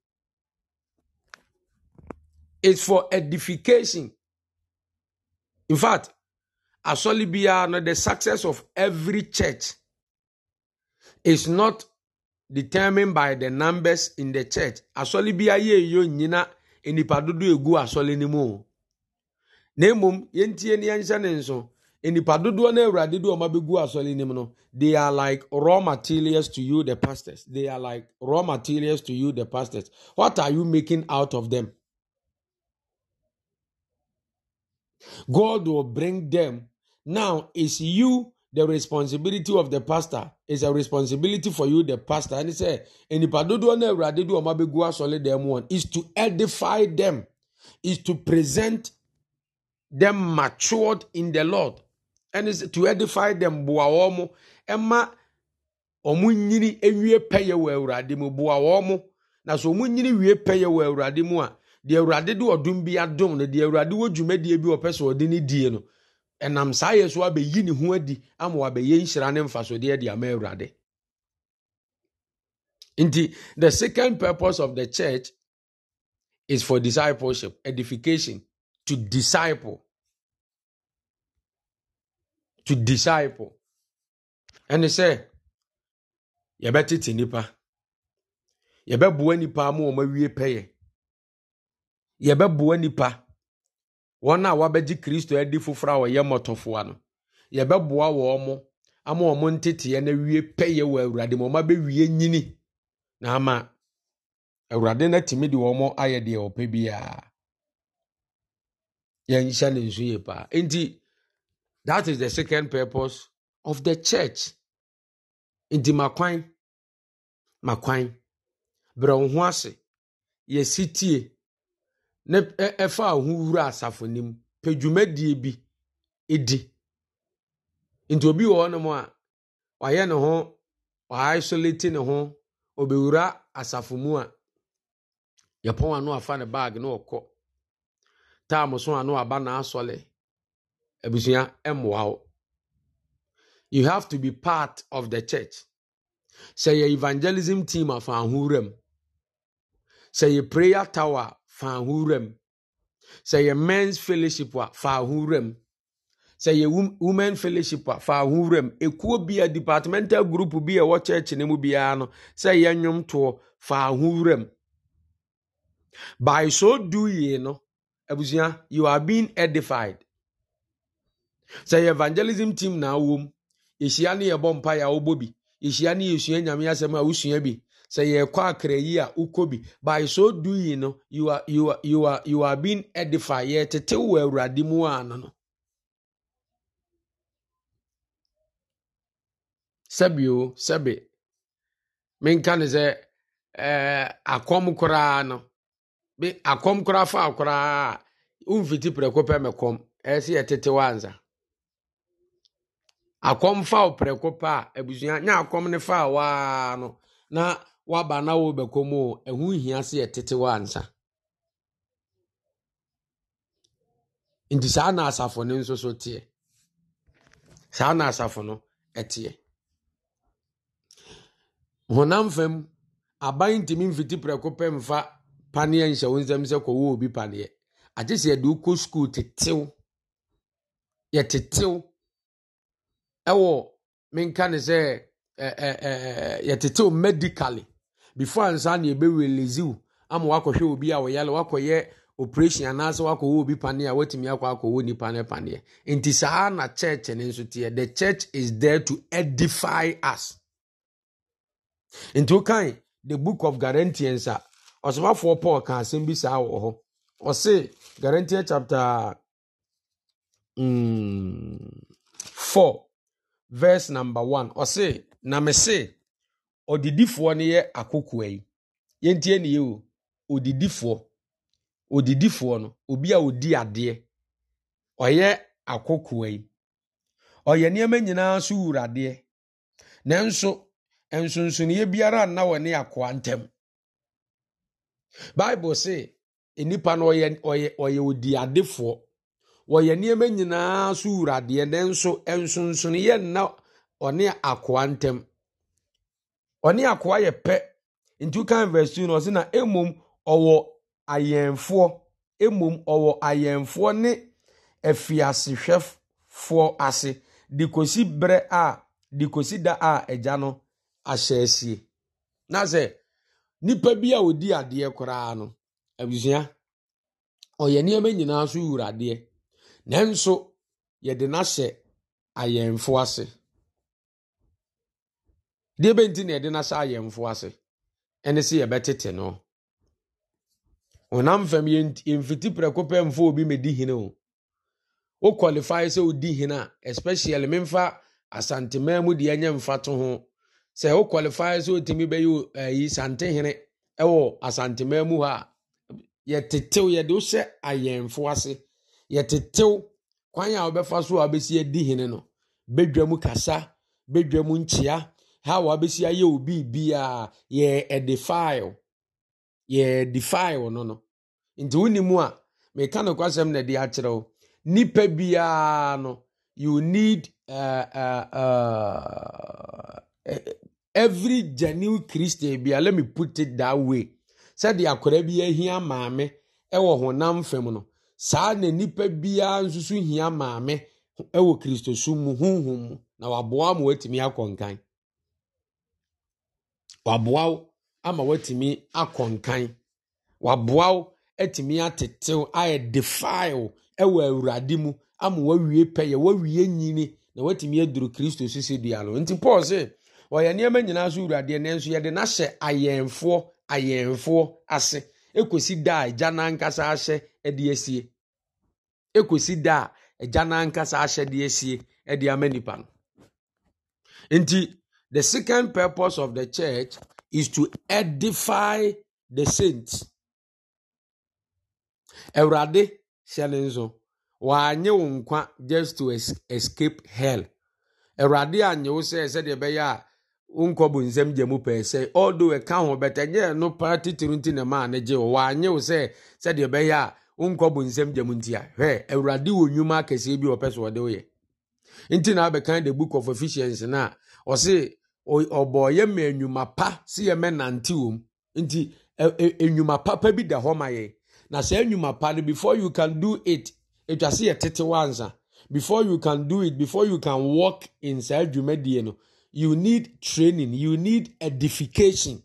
It's for edification. In fact, asɔli biara the success of every church is not determined by the numbers in the church. Asɔli biara yɛ eyo nyina nipa egu asɔli ne mu. Na emom, yɛntie ne yɛnhyɛ ne nso nnipa dodoɔ no awurade de ɔma bɛgu asɔre nim no they are like raw materials to you the pastors they are like raw materials to you the pastors what are you making out of them god will bring them now it's you the responsibility of the pastor is a responsibility for you the pastor and he said nnipa dodoɔ no awurade de ɔma bɛgu asɔre them one is to edify them is to present them matured in the lord ɛne to edify them boa wɔn ɛma wɔn nyini ewie pɛyɛ wɔ awurade mu boa wɔn na so wɔn nyini wie pɛyɛ wɔ awurade mu a deɛ awurade de ɔdum bi adum no deɛ awurade wɔ dwumadie bi ɔpɛ sɛ ɔde ne die no ɛnam saa yɛ so abɛyi ne ho adi ama wabɛyɛ nhyira ne mfasodeɛ de ama awurade nti the second purpose of the church is for discipleship edification to disciple to disciple ɛne sɛ yɛbɛtete nnipa yɛbɛboa nnipa ama wɔn awie pɛyɛ yɛbɛboa nnipa wɔn a wɔabɛgye kristo adi foforɔ a wɔyɛ mmɔtɔfoa no yɛbɛboa wɔn mo ama wɔn nteteɛ no awie pɛyɛ wɔ awurade ma wɔn abɛwie nyini na ama awurade no atumi de wɔn ayɛ deɛ ɔpɛ biara yɛnhyɛ ne nso yie paa nti. That is the second purpose of the church. Nti makwan, makwan, brɛ wo ho ase, yɛsi tie, ne ɛfa a wura asafo nim, pɛ dwumadie bi di. Nti obi wɔ hɔnom a, wayɛ ne ho, waisolate ne ho, obɛwura asafo mu a, yɛpɔn ano afa ne baage na ɔkɔ. Taa mo so ano na n'asɔle. abusua mmoa wo you have to be part of the church sɛ yɛ evangelism team a fa ahowura mu sɛ yɛ prayer tower of fa ahowura mu sɛ yɛ men's fellowship a fa ahowura mu sɛ yɛ women fellowship a fa ahowura mu ekuo bi a departmental group bi a ɛwɔ church ne mu biara no sɛ yɛ nnwomtoɔ fa ahowura by so doing no abusua you are being edified sɛ yɛ evangelism team na awɔ yɛhyia ne yɛbɔ mpa yɛ awɔbɔ bi yɛhyia ne yɛsua nyame asɛm a wosua bi sɛ yɛkɔ akra yi a wokɔ bi by so doing no you are you are you are you are being edified yɛtete wɔ awurade mu a no no sɛbio sɛbe menka ne sɛ eh, akɔm koraa no akɔm koraa fa koraa a womfiti prɛko pɛ mɛkɔm ɛsɛ yɛtete wansa akɔm fa wo prɛko pa a abusua nye akɔm ne fa waa no na waba na wɔrebɛkɔ mu o ɛho hia sɛ yɛtete wɔ nsa. nti saa na asafo no nso so teɛ saa na asafo no teɛ honam fam aban ntumi mfiti prɛko pɛ mfa paneɛ nhyɛ wo nsɛm sɛ kɔwɔ obi paneɛ agye sɛ yɛde wokɔ skuul tetew yɛtetew ɛwɔ menka ne sɛ yɛtetew medically before ansa ne yɛbɛwelezi wo ama wakɔhwɛ obi a ɔyale wakɔyɛ operation anaasɛ wakɔwɔ obi paneɛ a watumi akɔ akɔwɔ nipa no paneɛ nti saa na church no nso teɛ the church is there to edify us nti wokan the book of Galatians a ɔsomafoɔ paul ka asɛm bi saa wɔ hɔ ɔse Galatians chapter mm, 4 verse number one sị na mese ɔdidifoɔ no yɛ akokoa yi yɛntie na ihe o odidifoɔ odidifoɔ no obi a odi adeɛ ɔyɛ akokoa yi ɔyɛ nneɛma nyinaa so wura adeɛ nanso nsonsonoeɛ biara nna wɔ ne akoa ntam bible se nnipa no ɔyɛ ɔyɛ ɔyɛ odi adefoɔ wɔyɛ nneɛma nyinaa so wuradeɛ nso nsonsonoyɛ nna ɔne akoa ntam ɔne akoa yɛ pɛ nti wokan verse 2 no ɔse na mmom ɔwɔ ayɛnfoɔ mmom ɔwɔ ayɛnfoɔ ne afiasehwɛfoɔ ase de kɔsi berɛ a de kɔsi da a agya no ahyɛ asie na sɛ nipa bi a ɔdi adeɛ koraa no abusua ɔyɛ nneɛma nyinaa so wuradeɛ nanso yɛde n'ahyɛ ayɛnfo ase deɛ bɛnti na yɛde n'ahyɛ ayɛnfo ase ɛne sɛ yɛbɛtete no ɔnam fam yɛmfiti prɛko pɛ mfo obi mɛdi hene o wo qualify sɛ wodi hene a especially memfa asantemaa mu deɛ ɛnyɛ mfa to ho sɛ wo qualify sɛ wotumi bɛyɛ ayi eh, santehene ɛwɔ asantemaa mu hɔ a yɛtetew yɛde wo hyɛ ayɛnfo ase yɛtetew kwan a wɔbɛfa so a wɔbɛsi adi hene no bedwa mu kasa bedwa mu nkyea ha a wɔabɛsi ayɛ obi a? yɛ ɛde file yɛ ɛde file no no nti wonimu a meka no kwasɛm na ɛde akyerɛ wo nipa biara no you need uh, uh, uh, every genuine christian a. let me put it that way sɛde akwadaa bi ahia maame ɛwɔ honam fam no saa na nipa biara nso so hia maame wɔ kristosom mu honhom na waboa ama watumi akɔ nkan waboa ama watumi akɔ nkan waboa atumi atetew ayɛ defile wɔ awurade mu ama wawie pɛyɛ wawie nyini na watumi aduru kristo so sɛ dua no nti paul sɛ ɔyɛ nneɛma nyinaa so wuradeɛ nanso yɛde n'ahyɛ ayɛnfoɔ ayɛnfoɔ ase ekosi da a agya n'ankasa ahyɛ de asie ɛkɔsi da a agya no ankasa ahyɛde asie de ama nipa no nti the second purpose of the church is to edify the saints awurade hyɛ ne nso wanyɛ wo nkwa just to escape hell awurade anyɛ wo sɛ sɛdeɛ ɛbɛyɛ a wonkɔ bo nsɛm gya mu pɛɛ sɛ although ɛka ho bɛtɛ no pa titiri nti na maa ne gye wo wanyɛ wo sɛ sɛdeɛ ɛbɛyɛ a nkɔbɔ nsɛm gyam nti a hwɛ awurade wɔ nnwuma akɛseɛ bi ɔpɛ so ɔde woyɛ nti na abɛkan the book of efficiency na ɔse ɔbɔ yɛ mma nnwuma pa si yɛ mɛ nante wɔm nti nnwuma papa bi da hɔ ma yɛ na saa nnwuma pa no before you can do it etwa se yɛ tete wansa before you can do it before you can walk in saa dwumadie no you need training you need edification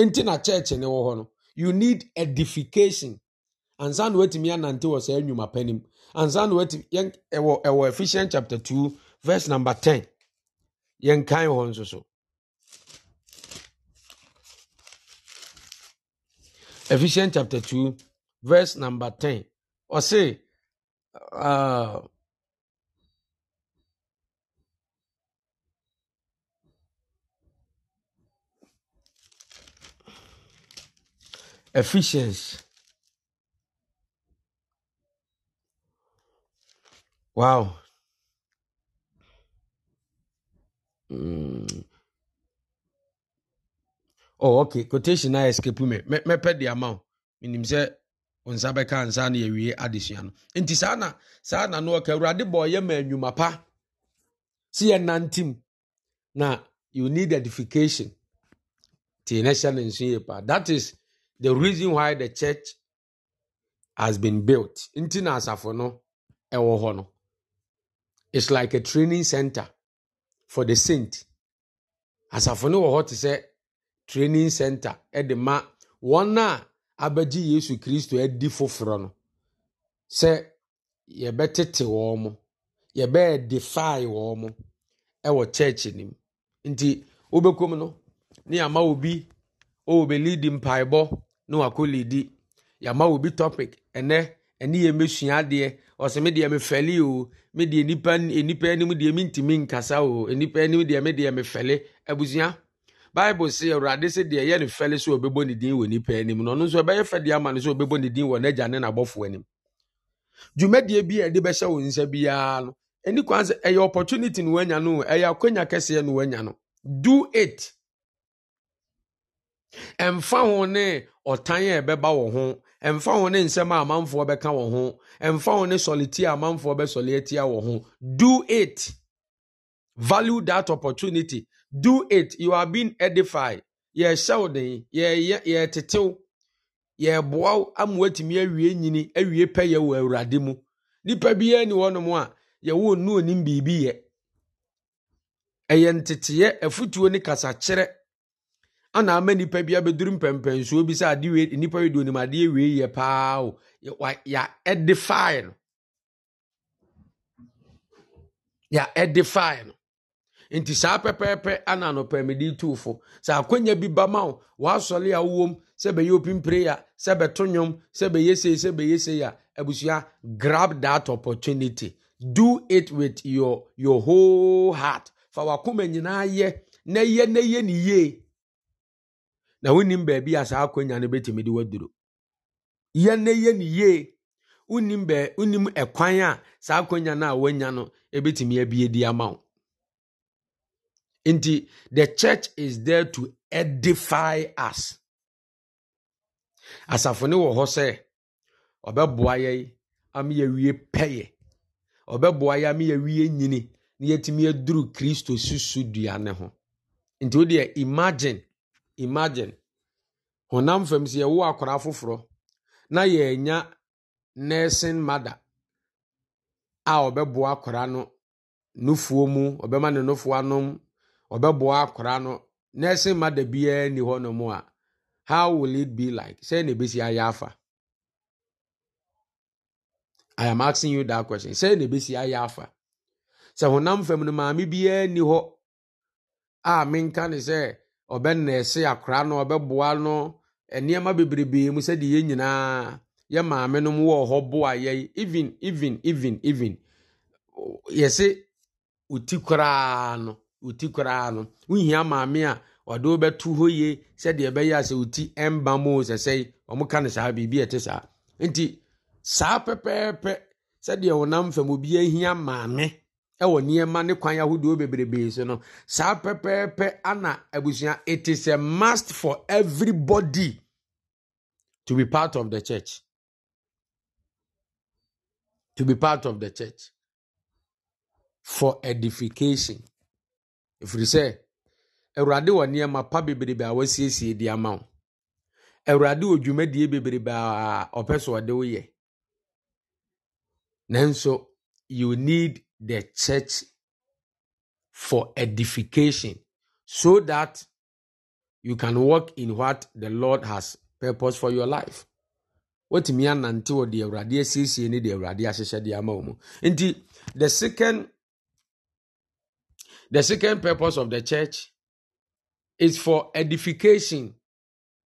nti na church ne wɔ hɔ no you need edification ansa na watumi anante wɔ saa nnwuma pa nim ansa na watumi yɛn ɛwɔ ɛwɔ Ephesians chapter two verse number ten yɛn kan hɔ nso so Ephesians chapter two verse number ten ɔse. Uh, Ephesians. Wow. Mm. Oh, okay. Quotation na escape me. Me me pɛ de ama wo. Minim sɛ nsa bɛka nsa na yɛwie adesua no. Nti saa no ɔka boy bɔ yɛ ma nnwuma pa. Si yɛ nantim. Na you need edification. Ti nation hyɛ ne pa. That is the reason why the church has been built nti na asafo no ɛwɔ hɔ no it's like a training center for the saint asafo no wɔ hɔ te sɛ training center ɛde ma wɔn a abɛgye yesu kristo adi foforɔ no sɛ yɛbɛtete wɔn mo yɛbɛyɛ defy wɔn mo ɛwɔ church nim nti wobɛkɔm no ne ama obi ɔwɔ bɛ lead mpaebɔ na wakɔ lidi yɛama wɔ bi topic ɛnɛ ɛne yɛ mɛsua adeɛ ɔsɛ me deɛ mefɛle o me deɛ nipa nipa anim deɛ mentimi nkasa o nipa anim deɛ me deɛ mefɛle abusua bible sɛ awurade sɛ deɛ ɛyɛ ne fɛle sɛ ɔbɛbɔ ne din wɔ nipa anim na ɔno nso ɛbɛyɛ fɛ deɛ ama no sɛ ɔbɛbɔ ne din wɔ n'agya ne n'abɔfoɔ anim dwumadie bi a ɛde bɛhyɛ wo nsa biara no ɛni kwan sɛ ɛyɛ opportunity no wanya no ɛyɛ akɔnya kɛseɛ no wanya no do it ɛmfa ho ne ɔtan a ɛbɛba wɔ ho ɛmfa ho ne nsɛm a amanfoɔ bɛka wɔ ho ɛmfa ho ne a amanfoɔ bɛsɔle atia wɔ ho do it value that opportunity do it you are being edified yɛhyɛ wo den yɛtetew yɛboa wo ama woatumi awie nyini awie wɔ awurade mu biara ni a yɛwɔ onim biribi yɛ ɛyɛ nteteyɛ ana ama nipa bi abɛduru mpɛmpɛnsuo bi sɛ ade wei nipa wei de onim adeɛ wei yɛ paa o ya edify no ya edify no nti saa pɛpɛɛpɛ ana anɔpɛmɛde tuufo sɛ akɔnya bi ba ma wo wasɔre a wowom sɛ bɛyɛ open prayer sɛ bɛto nnwom sɛ bɛyɛ sei sɛ bɛyɛ sei a abusua grab that opportunity do it with your your whole heart fa wakoma nyinaa yɛ na yɛ na yɛ ne yie na wonim baabi a saa akwanya no bɛtumi de waduro yɛn na yɛ ne yie wonim bɛ wonim ɛkwan a saa akwanya no a wanya no ɛbɛtumi abie di ama wo nti the church is there to edify us asafo ne wɔ hɔ sɛ ɔbɛboa yɛ ama yɛwie pɛyɛ ɔbɛboa yɛ ama yɛwie nyini na yɛtumi aduru kristo susu dua ne ho nti wodeɛ imagine imagine honam fam sɛ yɛwo akwaraa foforɔ na yɛanya nursing mother a ɔbɛboa akwaraa no nufuo mu ɔbɛma ne nufuo anom ɔbɛboa akwaraa no nursing mother biara ni hɔ nom a how will it be like sɛ na ebesi ayɛ afa i am asking you that question sɛ na ebesi ayɛ afa sɛ honam fam no maame biara ni hɔ a menka ne sɛ. na ese ɔbɛnɛɛse akora no ɔbɛboa no nneɛma bebrebe mu sɛdeɛ yɛn nyinaa yẹ maame no mu wɔ hɔ boa yɛn even even even even yɛse oti koraa no oti koraa no wohia maame a ɔde wobɛto hɔ yie sɛdeɛ ɛbɛyɛ a sɛ oti ɛmba mu sɛsɛi ɔmo ka no saa biribi ɛte saa nti saa pẹpẹẹpẹ pɛpɛɛpɛ sɛdeɛ ɔnam fam obi ahia maame ɛwɔ nneɛma ne kwan ahodoɔ bebrebe so no saa pɛpɛɛpɛ ana abusua it is a must for everybody to be part of the church to be part of the church for edification ɛfiri sɛ awurade wɔ nneɛma pa bebrebe a wasiesie de ama wo awurade wɔ dwumadie bebrebe a ɔpɛ so ɔde woyɛ nanso you need the church for edification so that you can walk in what the Lord has purpose for your life. Wotumi anante wɔ deɛ Awurade asiesie ne deɛ the second the second purpose of the church is for edification.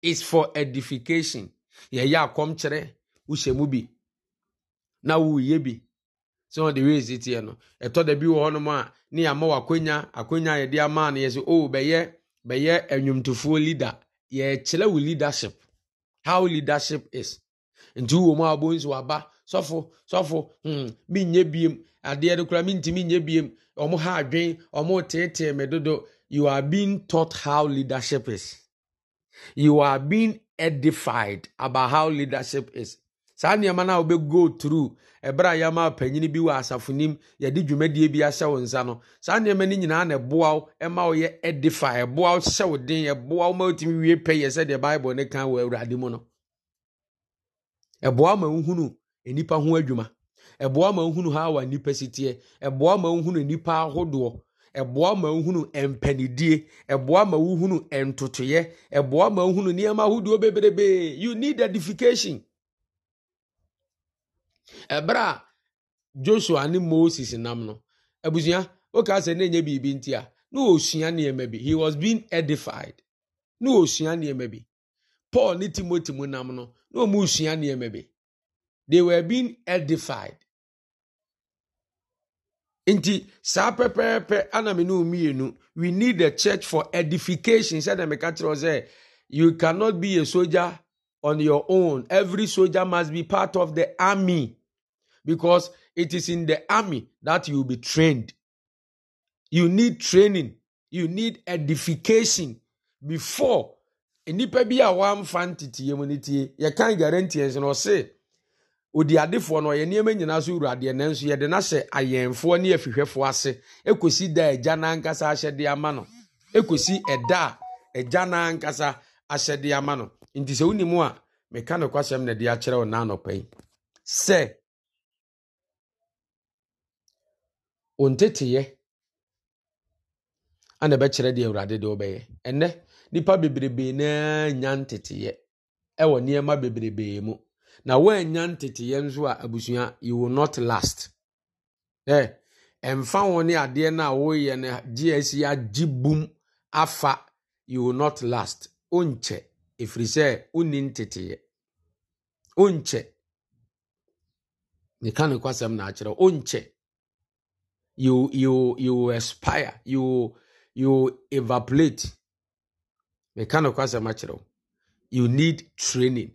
Is for edification. Yɛyɛ akɔmkyerɛ wohyɛ mu na uyebi. sɛ ɔde wei si teɛ no ɛtɔ da bi wɔ hɔnom a ne yɛama wɔ akonya akonya a yɛde ama no yɛ sɛ o oh, bɛyɛ bɛyɛ anwomtofoɔ leader yɛkyerɛ wo leadership how leadership is nti wo mu a wɔbɔ nsu aba sɔfo sɔfo hmm menyɛ biem adeɛ no koraa mentumi nyɛ biem ɔmo ha adwen ɔmo teetee me dodo you are being taught how leadership is you are being edified about how leadership is saa nneɛma no a go through ɛberɛ a yɛama panyini bi wɔ asafonim yɛde dwumadie bi ahyɛ wo nsa no saa nneɛma no nyinaa na ɛboa wo ɛma wo yɛ edifa ɛboa wo hyɛ wo den ɛboa wo ma wotumi wie pɛyɛ sɛdeɛ bible ne kan wɔ awurade mu no ɛboa ma wohunu nnipa ho adwuma ɛboa ma wohunu ha wa nnipa siteɛ ɛboa ma wohunu nnipa ahodoɔ ɛboa ma wohunu mpanidie ɛboa ma wohunu ntotoyɛ ɛboa ma wohunu nneɛma ahodoɔ bebrebee you need edification ɛberɛ a joshua ni moses nam no abusua woka sɛ na ɛnyɛ biribi nti a na ɔsua nneɛma bi he was being edified na ɔsua nneɛma bi paul ne timothy mu nam no na ɔmu sua nneɛma bi they were being edified nti saa pɛpɛɛpɛ ana me ne mmienu we need a church for edification sɛdeɛ meka kyerɛ sɛ you cannot be a soldier on your own every soldier must be part of the army because it is in the army that you will be trained. You need training, you need edification before nnipa bi a wɔamfa nteteyɛ mu no tie yɛkan guarantees no ɔse odi adefoɔ no ɔyɛ nneɛma nyinaa so wura adeɛ nanso yɛde no ayɛnfoɔ ne afihwɛfoɔ ase ɛkɔsi da agya n'ankasa ahyɛde ama no ɛkɔsi ɛda a n'ankasa ahyɛde ama no nti sɛ wonim a meka no na de akyerɛ wo yi sɛ wo nteteyɛ ana ɛbɛkyerɛ deɛ awurade de wobɛyɛ ɛnɛ nnipa bebrebee naa nya nteteyɛ ɛwɔ nneɛma bebrebee mu na woannya nteteyɛ nso a abusua you will not last ɛ ɛmfa wo ne adeɛ no a woyɛ no gyeasi agye bum afa you will not last wonkyɛ efiri sɛ wonni nteteyɛ wonkyɛ meka no kwasɛm na akyerɛ wonkyɛ you you you expire you you evaporate mechanical asɛm akyerɛ wo you need training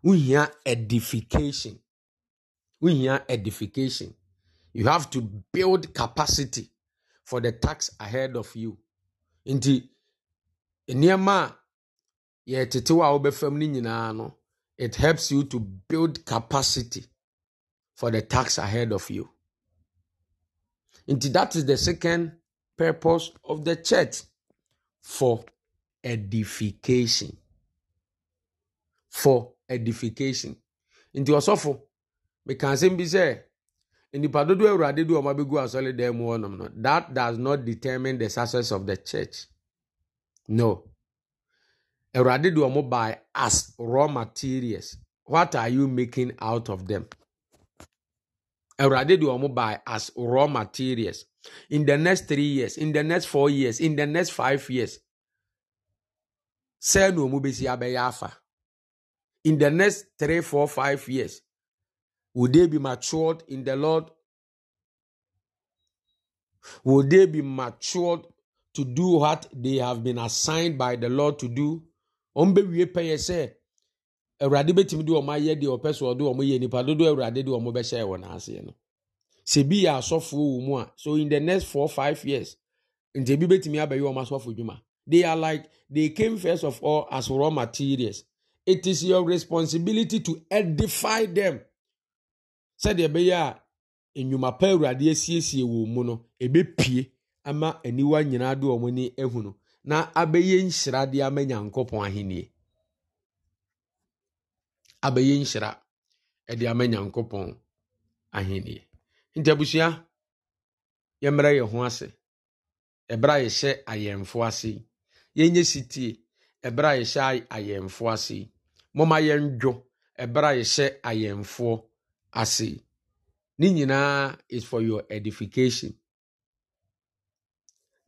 We hear edification We hear edification you have to build capacity for the tax ahead of you nti nneɛma a yɛtetew a wobɛfam no nyinaa no it helps you to build capacity for the tax ahead of you nti that is the second purpose of the church for edification for edification nti ɔsɔfo mekan asɛm bi sɛ nnipa dodoɔ awurade de ɔma bɛgu asɔre dan mu no that does not determine the success of the church no awurade de ɔmo by as raw materials what are you making out of them awurade de wɔn buy as raw materials in the next three years in the next four years in the next five years sɛɛ na wɔn bɛsi abɛyɛ afa in the next three four five years will they be matured in the lord will they be matured to do what they have been assigned by the lord to do wɔn bɛwie pɛyɛ sɛ awurade bɛtumi de wɔn ayɛ deɛ ɔpɛ so ɔde wɔn yɛ nipa dodo awurade de wɔn bɛhyɛ wɔn aseɛ no sɛ yɛ asɔfoɔ wɔ mu a so in the next four five years nti ebi bɛtumi abɛyɛ wɔn asɔfo dwuma they are like they came first of all as raw materials it is your responsibility to edify them sɛdeɛ ɛbɛyɛ a nnwuma pa awurade asiesie wɔ mu no ebɛpie ama aniwa nyinaa de wɔn ani ehunu na abɛyɛ nhyira de ama nyankopɔn ahenni abɛyɛ nhyira ɛde ama nyankopɔn ahenni nti abusua yɛmmrɛ yɛn ho ase ɛberɛ a yɛhyɛ ayɛmfo ase yɛnyɛ sitie ɛberɛ a yɛhyɛ ayɛmfo ase momma yɛndwo ɛberɛ a yɛhyɛ ayɛmfoɔ ase ne nyinaa is for your edification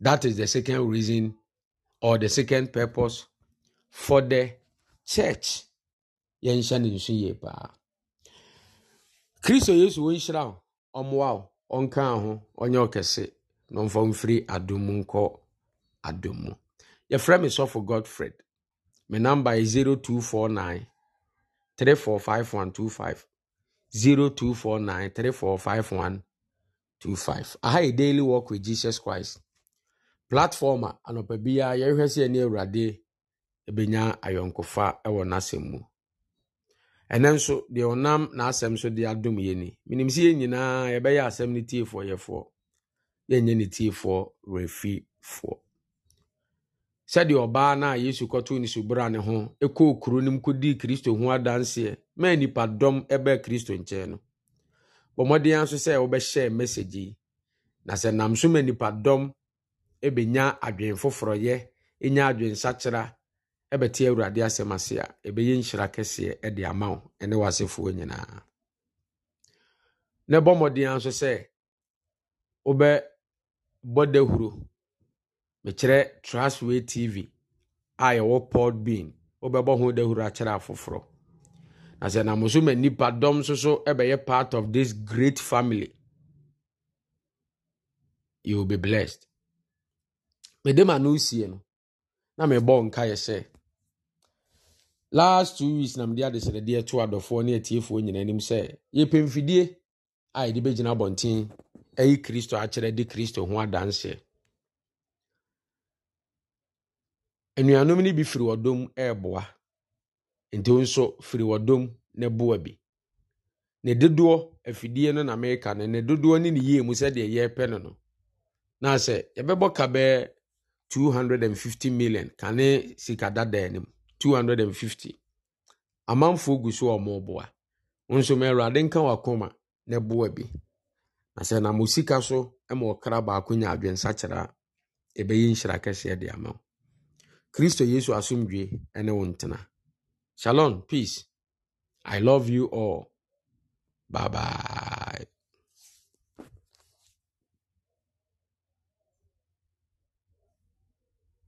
that is the second reason or the second purpose for the church yɛnhyɛ ne nso yie paa kristo yesu wɔnhyira wo ɔmmoa wo ɔnka ho ɔnyɛ ɔkɛse na ɔmfa mfiri adom mu nkɔ adom mu yɛfrɛ me godfred me number yɛ 0249 345125 0249 345125 aha yɛ daily work with jesus christ platform a anɔpa biara yɛhwɛ sɛ ɛne awurade ɛbɛnya ayɔnkofa wɔ n'asɛm ɛnɛ nso deɛ ɔnam n'asɛm so de adom yɛ ni menim sɛ yɛn nyinaa yɛbɛyɛ asɛm no tiefoɔ yɛfoɔ yɛnyɛ ne tiefoɔ refifoɔ sɛdeɛ ɔbaa no a yesu kɔtoo ne subra ne ho ɛkɔɔ kuro no m kɔdii kristo ho adanseɛ nnipadɔm kristo nkyɛn no bɔ nso sɛ yi na sɛ nam so ma nnipadɔm foforɔyɛ ɛbɛte awurade asɛm ase a ɛbɛyɛ nhyira kɛseɛ de ama wo ne w'asefoɔ nyinaa na ɛbɔ mmɔdena nso sɛ wobɛbɔ dahuro mekyerɛ trasway tv a yɛwɔ pod bean wobɛbɔ ho dahuro akyerɛ afoforɔ na sɛ nam so ma nnipadɔm nso so ɛbɛyɛ part of this great family you will be blessed mede ma no sie no na mebɔ nkaeɛ sɛ last two weeks na mede adesrɛdeɛ to adɔfoɔ ne atiefoɔ nyinaa anim sɛ yɛpɛ mfidie a yɛde bɛgyina abɔnten ayi kristo akyerɛ de kristo ho adanseɛ anuanom no bi firi wɔdom ɛɛboa nti nso firi wɔdom ne boa bi ne dodoɔ afidie no na mereka no ne dodoɔ ne ne yie mu sɛdeɛ yɛrepɛ no no na sɛ yɛbɛbɔ ka bɛɛ 250 million kane sikadadaɛ no mu 250 amanfoɔ gu so a wɔreboa nso ma awurade nka wakoma na boa bi na sɛ nam osika so ma ɔkra baako nya adwensakyerɛ a ɛbɛyɛ nhyira kɛseɛ de ama wo kristo yesu asomdwe ne wo ntena shalom peace i love you all bye bye